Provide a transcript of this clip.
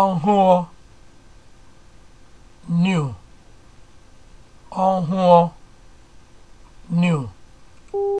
ọhụụ new ọhụụ new